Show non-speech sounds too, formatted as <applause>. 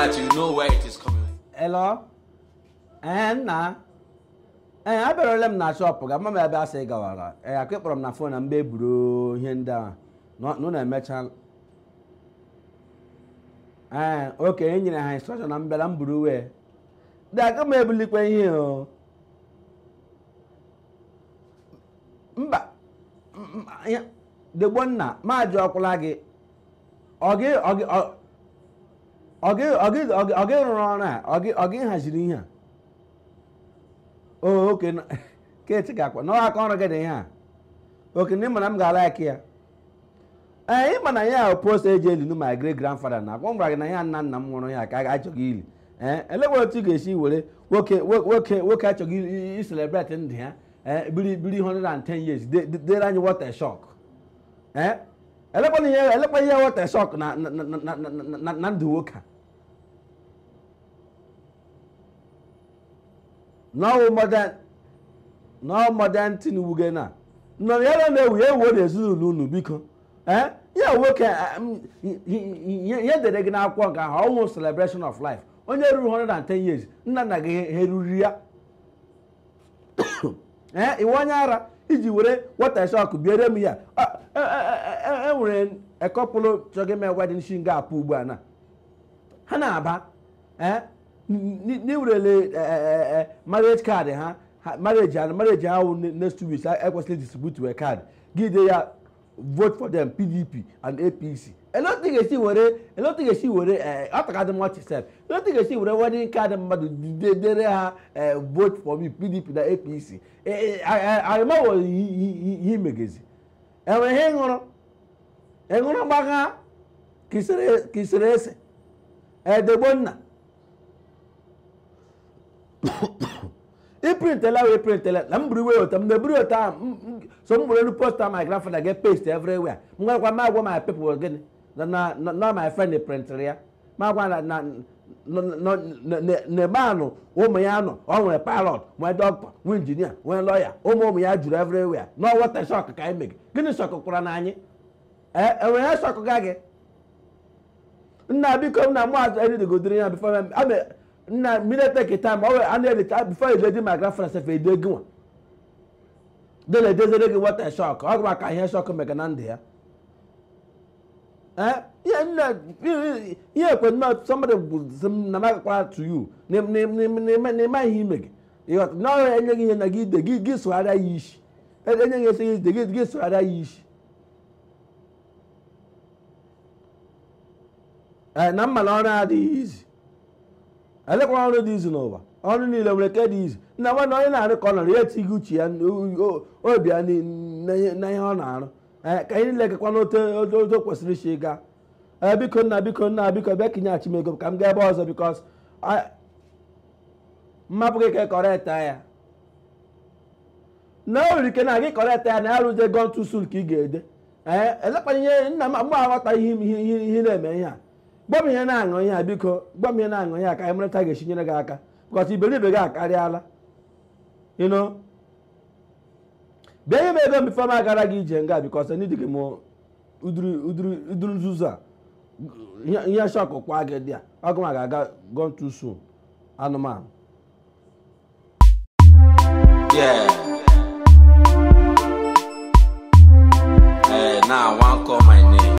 that you know where it is coming ee eh, eh, abịarala m na shọpụ ga mama ebe asị gawara ee eh, akụ m na fon na mgbe eburu ihe ndị a nụ na-emecha ee okenye enyere ha instrọkshọn na mbịara m buru wee dị aka m ebulikwa ihe o mba degbonna maajụ ọkwụla gị ọ gị ọ gị rụrụ ọrụ a ọ gị haziri ihe a oke keti ga-akwa n'ọha aka ọrụ gị a oke na m ga-ala ya ee ịma na ya post eji elinu ma Grand grandfather na akwa m gwara gị na ya nna nna m nwụrụ ya ka a achọghị ili ee elekwa otu ị ga-esi were nwoke nwoke nwoke achọghị iselebreti ndụ ya biri biri years dere anyị water shock elekwa ihe water shock na ndụ nwoke a nọwụ modern tin na nọ ya na na-ewu ewu na ezinụlọ unu biko ee ya nwoke ya dere gị n'akwụkwọ nke ahụ ọnwụ celebration of life onye ruru 110 years nna na gị eruri ya ee iwe onye ara iji were wata shọkụ biere m ya enwere ekọpụlụ chọgị me wedin shi nga apụ ugbu a na ha na-aba ne wura eh, eh, eh, marriage card ha marriage and marriage ha next two weeks I ekwesịrị distribute your card give dey vote for them pdp and apc e thing ga see were elotin ga-esi were ọtakadị mmachi sef elotin ga-esi were wedding card mmadụ dere ha vote for me pdp na apc e I I he arịmawo ihe imegezi enwere ihe ṅụrụ ịṅụrụ gbagha kisere ese edegbonna iprintela <coughs> wee printela na m buru iwe otu m buru ota otu so m bụrụ elu posta my grandfather get paste everywhere m gwarakwa ma agwa my people gịnị na my friend printịrị ya ma agwa na anụ ụmụ ya nọ ọ nwere pilot nwee dọkịta nwee injinia nwee lọya ụmụ ụmụ ya juru everywhere n'ọwọta shọk ka anyị megị gịnị shọk na na anyị enwere e ya shọk ga gị nna biko nna nna military time ọ e a na-edeta before eje my grandfather sef edo egi nwa de na-edezere gị wata shọk ọ gụma ka ihe shọk mega na ndụ ya ihe ekwe somebody na magakwara to you n'ịma ihe ime gị n'ọhịa enye gị ihe na gị ide gị gị sụgharịa ya isi enye e gị esi ide gị gị sụgharịa ya isi eh, na mma na ọrụ adịghị izi elekwa ọrụ dị izu n'ụwa ọrụ niile nwere ke dị izu nna nwana onye na-arụ ka ọ nọrọ ya etighị uche ya obi ya na ihe ọ na-arụ ka anyị niile gakwa n'otu otu kwesịrị isi gaa ee biko nna biko nna biko bịa kinye achịm ego ka m gaa ebe ọzọ bikos mmapụ gị ka e ya na o nwere ike na gị eta ya na ya rụzie sul ka ị ga-ede ee elekwana ihe nna m mgbe aghọta ihe ihe na-eme ihe a gwa ihe na-aṅụ ihe a biko gwa m ihe na-aṅụ ihe a ka anyị mara ta ga-esi nyere gị aka because iberibe gị akarịala ịnụ bịa ihe m ego bifo m agara gị ije nga because ndị gị m uduru nzuzo a ihe shọkụ kwa gị dị a ọgụ ga-aga go too anụmanụ